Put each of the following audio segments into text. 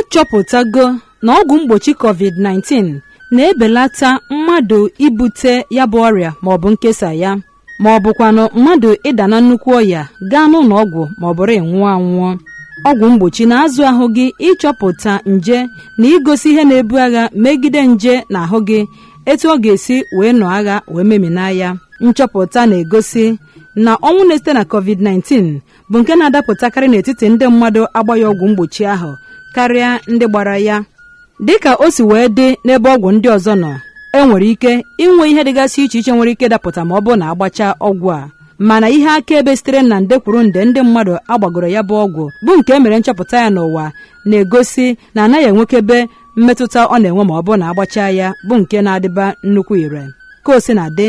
achọpụtago na ọgwụ mgbochi covid-19 na-ebelata mmadụ ibute ya bụ ọrịa maọbụ nkesa ya ma ọ bụkwanụ mmadụ ịda na nnukwu ọya gaa n'ụlọ ọgwụ ma ọ bụrụ ịnwụọ anwụọ ọgwụ mgbochi na-azụ ahụ gị ịchọpụta nje na igosi ihe na-ebu agha megide nje na ahụ gị etu ọ ga-esi wee nọ agha wee memina ya nchọpụta na-egosi na ọnwụ na-esite na covid-19 bụ nke na-adapụtakarị n'etiti ndị mmadụ agbaghị ọgwụ mgbochi ahụ karịa ndị gbara ya dịka o si wee dị n'ebe ọgwụ ndị ọzọ nọ e nwere ike inwe ihe dịgasị iche iche nwere ike dapụta ma ọ bụrụ na agbachaa ọgwụ a mana ihe akaebe sitere na nde kwuru nde ndị mmadụ agbagoro ya bụ ọgwụ bụ nke e mere nchọpụta ya n'ụwa na-egosi na anaghị enwekebe mmetụta ọ na-enwe ma ọ bụrụ na agbachaa ya bụ nke na-adịba nnukwu ire ka o si na dị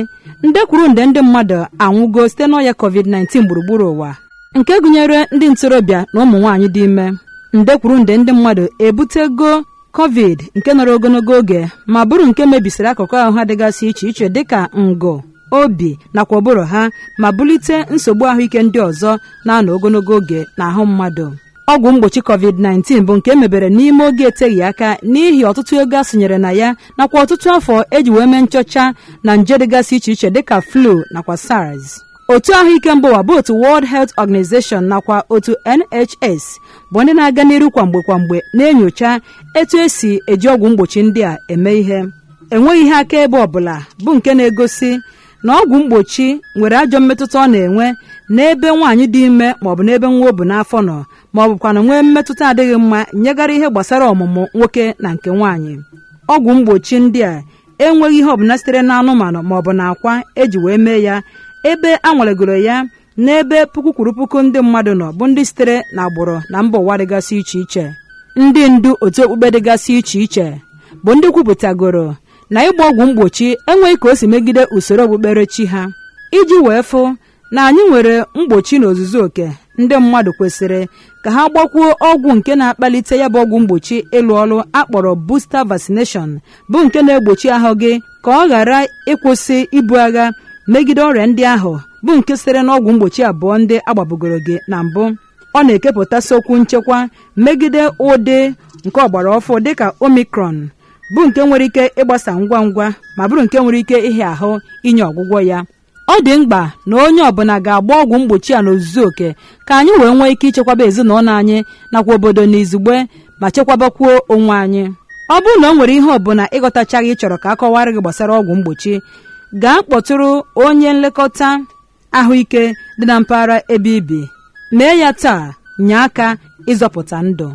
nde kwuru nde ndị mmadụ anwụgo site n'ọya covid-19 gburugburu ụwa nke gụnyere ndị ntorobịa na ụmụ nwaanyị dị ime nde kwuru nde ndị mmadụ ebutego covid nke nọrọ ogologo oge ma bụrụ nke mebisiri akụkụ ahụ ha dịgasị iche iche dịka ngụ obi nakwa ụbụrụ ha ma bulite nsogbu ahụike ndị ọzọ na-anọ ogologo oge n'ahụ mmadụ ọgwụ mgbochi covid-19 bụ nke emebere n'ime oge eteghị aka n'ihi ọtụtụ ego a sonyere na ya nakwa ọtụtụ afọ eji wee mee nchọcha na nje dịgasị iche iche dịka flu nakwa sars otu ahụike mba ụwa bụ otu World Health Organization nakwa otu NHS bụ ndị na-aga n'iru kwamgbe kwamgbe na-enyocha etu esi eji ọgwụ mgbochi ndị a eme ihe enweghị ihe akaebe ọbụla bụ nke na-egosi na ọgwụ mgbochi nwere ajọ mmetụta ọ na-enwe n'ebe nwaanyị dị ime maọbụ n'ebe nwa o bụ n'afọ nọ ma ọ bụkwana nwee mmetụta adịghị mma nyegara ihe gbasara ọmụmụ nwoke na nke nwaanyị ọgwụ mgbochi ndị a enweghị ihe ọbụla sitere n'anụmanụ maọbụ na akwa eji wee mee ya ebe a nwalegoro ya n'ebe puku kwuru puku ndị mmadụ nọ bụ ndị sitere n'agbụrụ na mba ụwa dịgasị iche iche ndị ndu otu okpukpe dịgasị iche iche bụ ndị kwupụtagoro na ịgba ọgwụ mgbochi enweghị ka o si megide usoro okpukperechi ha iji wee fụ na anyị nwere mgbochi na ozuzu oke ndị mmadụ kwesịrị ka ha gbakwuo ọgwụ nke na-akpalite ya bụ ọgwụ mgbochi ịlụ ọrụ akpọrọ busta vaccination bụ nke na-egbochi ahụ gị ka ọ ghara ịkwụsị ibu agha megide ọrịa ndị ahụ bụ nke sitere n'ọgwụ mgbochi abụọ ndị agbabugoro gị na mbụ ọ na-ekepụtasị okwu nchekwa megide ụdị nke ọgbara ọfụ dịka omicron bụ nke nwere ike ịgbasa ngwa ngwa ma bụrụ nke nwere ike ịhịa ahụ inye ọgwụgwọ ya ọ dị mkpa na onye ọbụla ga-agba ọgwụ mgbochi a n'ozuzu oke ka anyị wee nwee ike ịchekwaba ezinụlọ anyị nakwa obodo na izugbe ma chekwabakwuo onwe anyị ọ bụrụ na o nwere ihe ọbụla ịghọtachaghị ịchọrọ ka a kọwara gị gbasara ọgwụ mgbochi gaa kpọtụrụ onye nlekọta ahụike dị na mpaghara ebe ibi mee ya taa nye aka ịzọpụta ndụ